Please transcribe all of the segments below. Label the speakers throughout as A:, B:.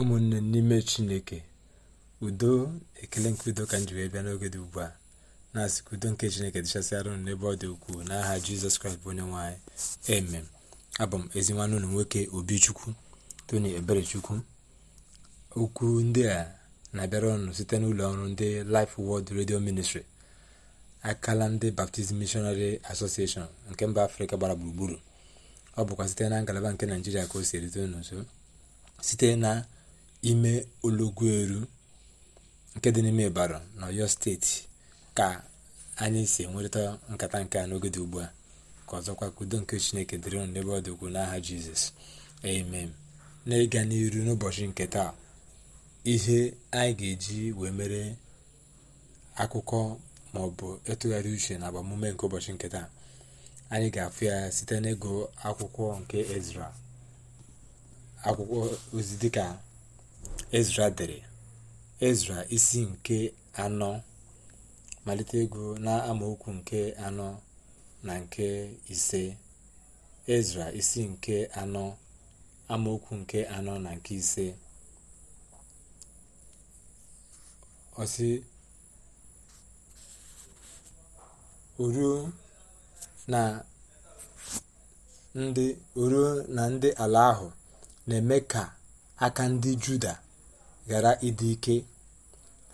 A: ụmụnne n'ime chineke udo ekele nke udo ka m ji bịa n'oge dị ugbu a na-asị udo nke chineke dịchasịara unu n'ebe ọ dị ukwuu n'aha jizọs kraịst bụ onye nwanyị eme abụ m ezi nwanne ụlọ nwoke obichukwu tony eberechukwu okwu ndị a na-abịara ọnụ site n'ụlọ ọrụ ndị Life World redio ministri akala ndị baptizim Missionary Association nke mba afrịka gbara gburugburu ọ bụkwa site na ngalaba nke naijiria ka o si erite unu nso site na ime olọgụelu nke dị n'ime Ibadan na steeti ka anyị si enwerịta nkata nke a n'oge dị ugbu a ka ọzọkwa ka nke Chineke dịrị unu n'ebe ọ dị ukwuu n'aha Jizọs amen na ịga n'iru n'ụbọchị nke taa ihe anyị ga-eji wee mere akụkọ ma ọ bụ ịtụgharị uche na agbamume nke ụbọchị nke taa anyị ga-afụ ya site n'ịgụ akwụkwọ nke Ezra akwụkwọ ozi dịka ezra dere ezra isi nke anọ malite ego na amaokwu nke anọ na nke ise ezra isi nke anọ amaokwu nke anọ na nke ise ọsị oruo na ndị ala ahụ na-eme ka aka ndị juda ghara ịdị ike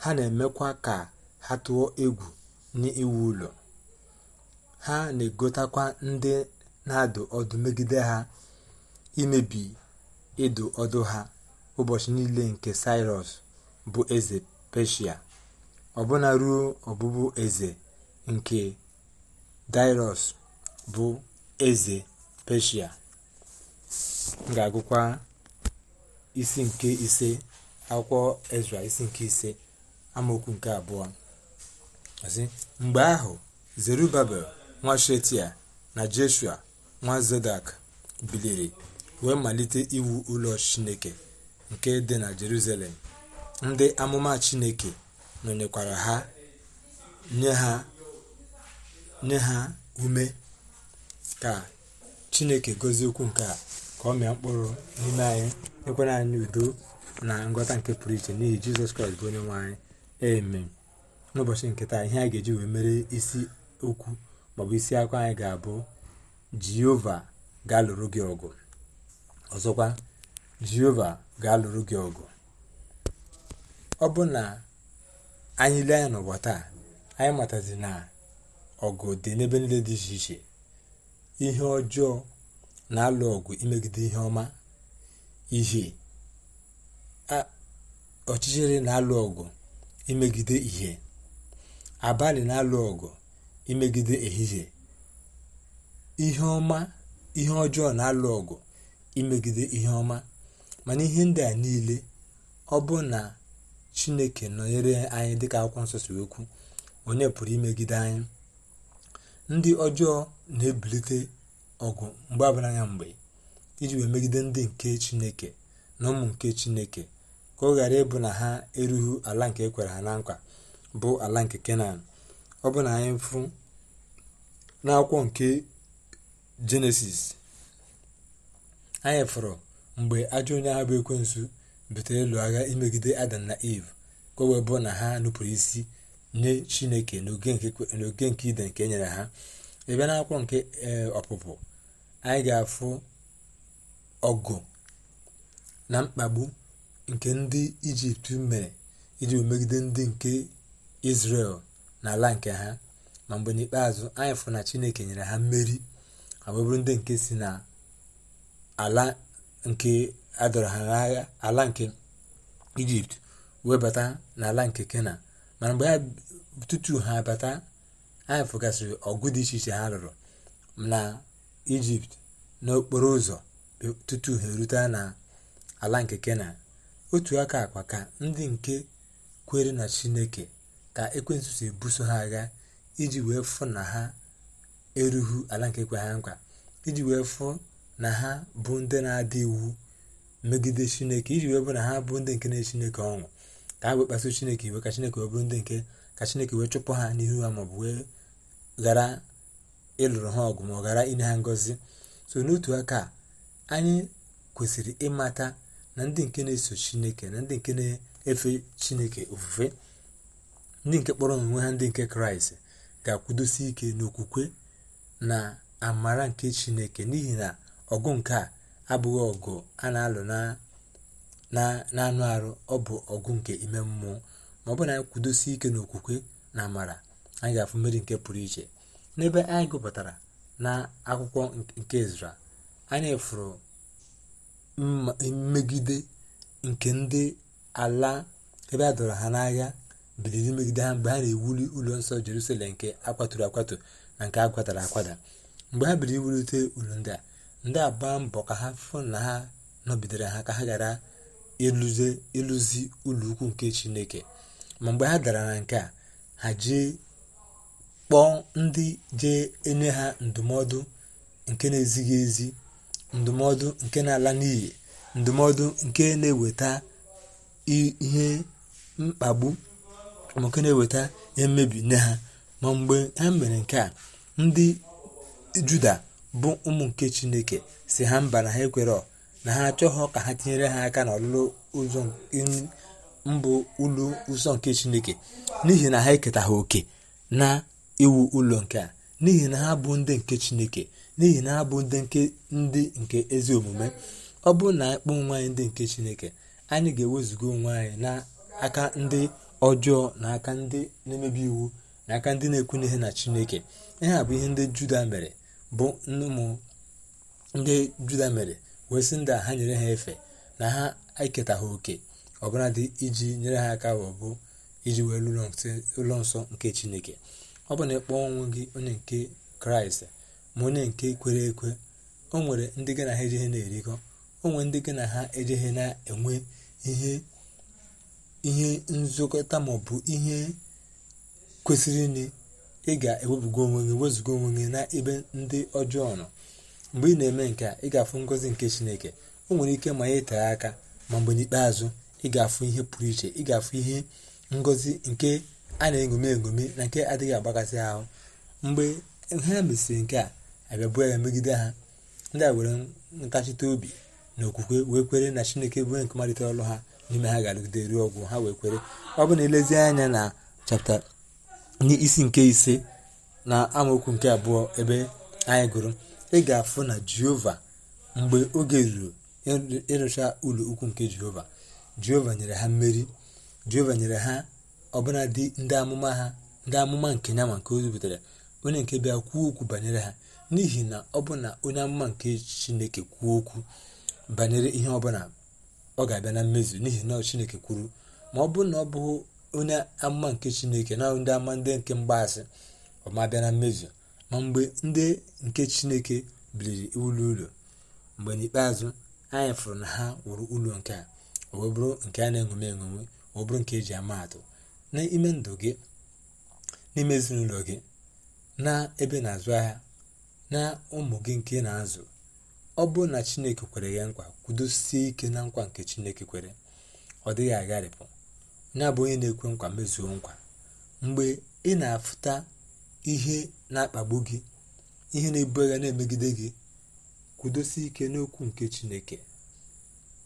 A: ha na-emekwa ka ha tụọ egwu n'iwu ụlọ ha na-egotakwa ndị na-adụ ọdụ megide ha imebi ịdụ ọdụ ha ụbọchị niile nke sirus bụ eze peshia ọbụna ruo ọbụbụ eze nke daịros bụ eze peshia ga-agụkwa isi nke ise akwụkwọ ezra isi nke ise amaokwu nke abụọ mgbe ahụ zerubabel nwa shetia na jeshua nwa zodak biliri wee malite iwu ụlọ chineke nke dị na jerusalem ndị amụma chineke nọnyekwara ha nye ha nye ha ume ka chineke gozie okwu nke a ka ọ mịa mkpụrụ n'ime anyị nyekwara anyị udo na ngọta nke pụrụ iche n'ihi jizọs kraịst bụ onye nwe anyị eme n'ụbọchị nke taa ihe a ga-eji wee mere isi okwu maọbụ isi akwa anyị ga-abụ jehova ga-alụrụ gị ọgụ ọzọkwa jehova ga-alụrụ gị ọgụ ọ bụ na anyị lee anya n'ụwa taa anyị matazi na ọgụ dị n'ebe niile dị iche iche ihe ọjọọ na-alụ ọgụ imegide ihe ọma ihe ọchịchịrị na ọgụ imegide ihe abalị na-alụ ọgụ imegide ehihie ihe ọma ihe ọjọọ na-alụ ọgụ imegide ihe ọma mana ihe ndị a niile ọ bụ na chineke nọnyere anyị dịka akwụkwọ nsọ si okwu onye pụrụ imegide anyị ndị ọjọọ na-ebilite ọgụ mgbe abara anya mgbe iji wee megide ndị nke chineke na ụmụ nke chineke ka ọ ghara ịbụ na ha erughi ala nke ekwere ha na nkwa bụ ala nke kenan ọ bụ na anyị fụ n'akwụkwọ nke jenesis anyị fụrụ mgbe ajọ onye ahụ bụ ekwensu butere ịlụ agha imegide adam na eve ka wee bụ na ha nupụrụ isi nye chineke n'oge nke ide nke e nyere ha ebe na akwọ nke eh, ọpụpụ anyị ga-afụ ọgụ na mkpagbu nke ndị ijipt mere iji megide ndị nke na n'ala nke ha ma mgbe n'ikpeazụ anyị fụrụ na chineke nyere ha mmeri abụbụrụ ndị nke si na ala nke adọrọ ha n'agha ala nke ijipt webata n'ala nke kena mana mgbe ha tutu ha bata anyị fụgasịrị ọgụ dị iche iche ha lụrụ na ijipt n'okporo ụzọ tutu ha erute na ala nke kenan otu aka akpa ka ndị nke kwere na chineke ka ekwensu si ebuso ha agha iji wee fụ na ha erughị ala nke kwe ha nkwa iji wee fụ na ha bụ ndị na-adị iwu megide chineke iji wee bụ na ha bụ ndị nke na chineke ọṅụ ka ha wee kpaso chineke iwe ka chineke wee bụrụ ndị nke ka chineke wee chụpụ ha n'ihu ha maọbụ wee ghara ịlụrụ ha ọgụ ma ọ ghara inye ha ngọzi so n'otu aka anyị kwesịrị ịmata na ndị nke na-eso chineke na ndị nke na-efe chineke ofufe ndị nke kpọrọ n'onwe ha ndị nke kraịst ga-akwụdosi ike n'okwukwe na amara nke chineke n'ihi na ọgụ nke a abụghị ọgụ a na-alụ na-anụ arụ ọ bụ ọgụ nke ime mmụọ ma ọ bụ na anyị kwudosi ike n'okwukwe na amara anyị ga-afụ mmeri nke pụrụ iche n'ebe anyị gụpụtara na akwụkwọ nke ezra anyị fụrụ mmegide nke ndị ala ebe a dọrọ ha n'agha biliri megide ha mgbe ha na-ewuli ụlọ nsọ jerusalem nke akwaturu akwatu na nke akwatara akwada mgbe ha biri iwulite ụlọ ndị a ndị a gbaa mbọ ka ha fụ na ha nọbidere ha ka ha ghara ịlụzi ụlọ ukwu nke chineke ma mgbe ha dara na nke a ha jee kpọọ ndị jee enye ha ndụmọdụ nke na-ezighị ezi ndụmọdụ nke na-ala n'iyi ndụmọdụ nke na-eweta ihe mkpagbu nke na-eweta ihe mmebi nye ha ma mgbe ha mere nke a ndị juda bụ ụmụ nke chineke si ha mba na ha ekwere na ha achọghọ ka ha tinyere ha aka n'ọlụlụ ụzọ mbụ ụlọ ụzọ nke chineke n'ihi na ha eketa ha oke na iwu ụlọ nke a n'ihi na ha bụ ndị nke chineke n'ihi na ha bụ ndị nke ndị nke ezi omume ọ bụrụ na akpọ onwe anyị ndị nke chineke anyị ga-ewezuga onwe anyị n'aka ndị ọjọọ na aka ndị na-emebi iwu na aka ndị na ekwu ihe na chineke ihe a bụ ihe ndị juda mere bụ ụmụ ndị juda mere wee sị ndị ha nyere ha efe na ha eketa ha oke ọbụladị iji nyere ha aka wee bụ iji wee ụlọ nsọ nke chineke ọ bụ na ịkpọ ọnwụ gị onye nke kraịst ma onye nke kwere ekwe o nwere ndị gị na ha ejeghe na-erikọ o nwere ndị gị na ha ejeghe na-enwe ihe ihe nzụkọta maọbụ ihe kwesịrị nị ị ga ewebugo onwe gị wezuga onwe gị na ebe ndị ọjọọ nọ mgbe ị na-eme nke a ị ga-afụ ngọzi nke chineke o nwere ike ma itere aka ma mgbe n'ikpeazụ ị ga-afụ ihe pụrụ iche ị ga-afụ ihe ngozi nke a na-egomi egomi na nke adịghị agbakasị ahụ mgbe ha mesịrị nke a abịabuo ya megide ha ndị a were ntachite obi na okwukwe wee kwere na chineke bụ nke malitere ọrụ ha n'ime ha ga-arụgide ruo ọgwụ ha wee kwere ọ bụ na elezi anya na chapta n'isi nke ise na amaokwu nke abụọ ebe anyị gụrụ ị ga-afụ na jehova mgbe oge ruru ịrụcha ụlọ ukwu nke jehova jehova nyere ha mmeri jehova nyere ha ọbụla dị ndị amụma ha ndị amụma nke ya ma nke ozi zipụtara onye nke bịa kwuo okwu banyere ha n'ihi na ọ bụ na onye amụma nke chineke kwuo okwu banyere ihe ọbụla ọ ga-abịa na mmezu n'ihi na chineke kwuru ma ọ bụrụ na ọ bụghị onye amụma nke chineke na ndị ama ndị nke mgbaasị ọmabịa na mmezu ma mgbe ndị nke chineke biliri ụlọ ụlọ mgbe n'ikpeazụ anyị fụrụ na ha wụrụ ụlọ nke a ọ bụrụ nke a na-enwome enwome ọ bụrụ nke eji ama atụ n'ime ndụ gị n'ime ezinụlọ gị na ebe na-azụ ahịa na ụmụ gị nke na-azụ ọ bụrụ na chineke kwere gị nkwa kwudosie ike na nkwa nke chineke kwere ọ dịghị agharịpụ ya bụ onye na-ekwe nkwa mezuo nkwa mgbe ị na-afụta ihe na-akpagbu gị ihe na-ebu agha na-emegide gị kwudosie ike n'okwu nke chineke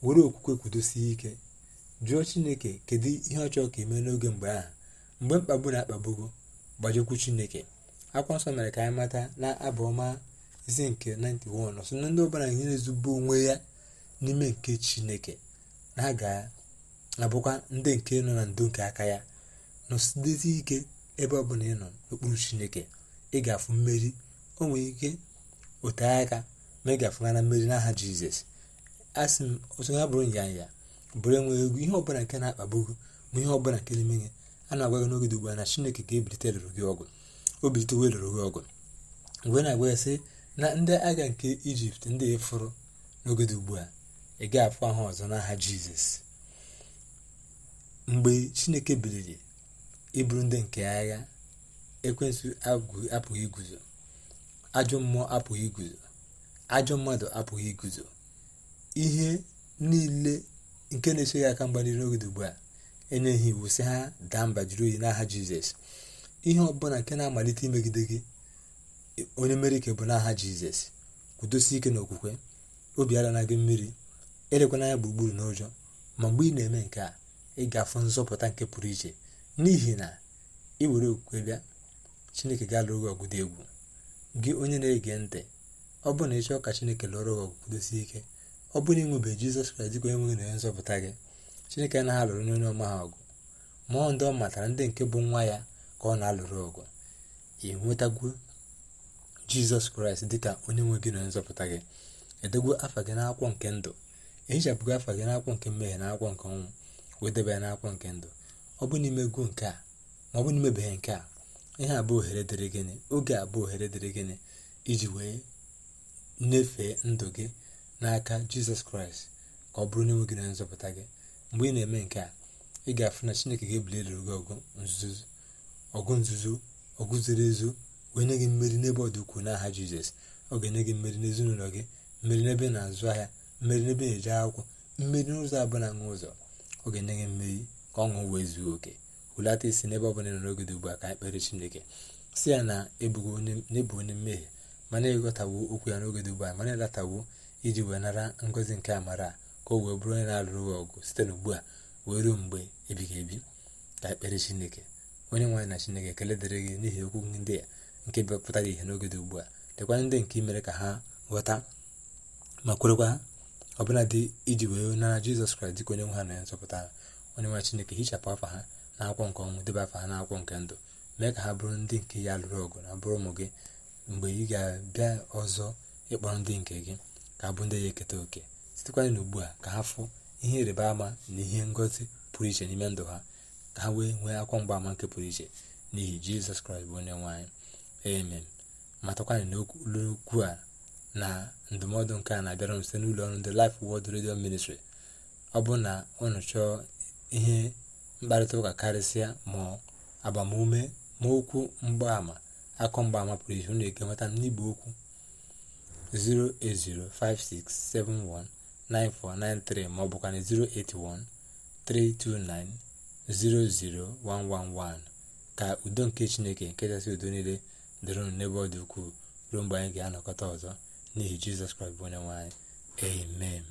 A: were okwukwe kwudosie ike jụọ chineke kedu ihe ọ chọrọ ka eme n'oge mgbe ahụ mgbe mkpagbu na-akpagbugo gbajekwu chineke akwa nsọ mere ka anyị mata na abụ ọma isi nke 91 ọsọ na ndị ọbụla ihe na-ezube onwe ya n'ime nke chineke na ha ga-abụkwa ndị nke nọ na ndo nke aka ya nọsidezi ike ebe ọbụla ị nọ n'okpuru chineke ị ga-afụ mmeri o nwere ike ote aka ma ị ga na mmeri n'aha jizọs asị m otu ha bụrụ nyanya bụrụ enweghị egwu ihe ọbụla nke na-akpagbu ma ihe ọbụla nke na-eme gị a na-agwa gị n'oge ugbu a na chineke ga ebilite lụrụ gị ọgụ o bilite lụrụ gị ọgụ mgbe na-agwa sị na ndị agha nke ijipt ndị ịfụrụ n'oge ugbu a ị ga afụ ahụ ọzọ n'aha jizọs mgbe chineke biliri ịbụrụ ndị nke agha ekwensụ apụghị iguzo ajọ mmụọ apụghị iguzo ajọ mmadụ apụghị iguzo ihe niile nke na-eso ya aka mgba n'iru n'oge ugbu a enye ha iwu sị ha daa mba jiri oyi n'aha jizọs ihe ọbụla nke na-amalite imegide gị onye mere ike bụ n'aha jizọs kwudosi ike n'okwukwe obi ala na gị mmiri elekwana n'anya gburugburu n'ụjọ ma mgbe ị na-eme nke a ị ga-afụ nzọpụta nke pụrụ iche n'ihi na ị were okwukwe bịa chineke ga alụ gị ọgụdụ egwu gị onye na-ege ntị ọ bụrụ na ị chọọ ka chineke lụọrọ gị ọgụ kwudosie ike ọ bụrụ inwebe jizọs kraịst dịka onye nwe nzọpụta gị chineke anaghị alụrụ n'onye ọma ha ọgụ mmụọ ndị ọ matara ndị nke bụ nwa ya ka ọ na-alụrụ ọgụ ị nwetagwu jizọs kraịst dịka onye nwe gị nonye nzọpụta gị edegwu afa gị n'akwụkwọ nke ndụ ehichapụgo afa gị n'akwụkwọ nke mmehie na akwụkwọ nke ọnwụ wee debe ya n'akwụkwọ nke ndụ ọ bụ n'ime gụ nke a ma ọ bụ n'imebeghị nke a ihe a bụ ohere dịrị gịnị oge a bụ ohere dịrị gịnị iji wee nyefee ndụ gị n'aka jizọs kraịst ka ọ bụrụ na nwe gị na nzọpụta gị mgbe ị na-eme nke a ị ga-afụ na chineke ga-ebuli eluru gị ọgụ nzuzo ọgụ zoro ezo wee nye gị mmeri n'ebe ọ dị ukwuu n'aha jizọs ọ ga-enye gị mmeri n'ezinụlọ gị mmeri n'ebe na-azụ ahịa mmeri n'ebe na-eje akwụkwọ mmeri n'ụzọ abụọ na nwa ụzọ ọ ga-enye gị mmeri ka ọṅụ wee zuo oke hulata isi n'ebe ọ bụla n'oge dị ugbu a ka ekpere chineke si ya na ebu e onye mmehie mana ịghọtawo okwu ya n'oge dị ugbu a mana ịlatawo iji wee nara ngozi nke amara ka o wee bụrụ onye na-alụrụ gị ọgụ site n'ugbu a wee ruo mgbe ebighị ebi ka ekpere chineke onye nwaanyị na chineke ekele dịrị gị n'ihi okwu ndị a nke bịapụtara ihe n'oge dị ugbu a lekwa ndị nke mere ka ha ghọta ma kwerekwa ọbụla dị iji wee nara jizọs kraịst dịka onye nwe ha na ya nzọpụta onye nwe chineke hichapụ afa ha na akwụkwọ nke ọnwụ debe afọ ha akwụkwọ nke ndụ mee ka ha bụrụ ndị nke ya lụrụ ọgụ na bụrụ ụmụ gị mgbe ị ga-abịa ọzọ ịkpọrọ ndị nke gị ga-abụ ndị ya eketa oke sitekwanye na ugbu a ka ha fụ ihe ịrịba ama na ihe ngozi pụrụ iche n'ime ndụ ha ka ha wee nwee akwa ama nke pụrụ iche n'ihi jizọs kraịst bụ onye nwaanyị amen matakwana n'okwu a na ndụmọdụ nke a na-abịara m site n'ụlọ ọrụ ndị Life Word Radio Ministry ọ bụ na unu chọọ ihe mkparịta ụka karịsịa ma agbamume ma okwu mgbaama akọ mgbaama pụrụ iche na-eke nweta n'igbe okwu 08056719493 maọbụkwanụ 08132900111 ka udo nke chineke nke kachasị udo niile dịrụnụ n'ebe ọ dị ukwuu ruo mgbe anyị ga-anọkọta ọzọ n'ihi jizọs kraịst bụ onye nwe amen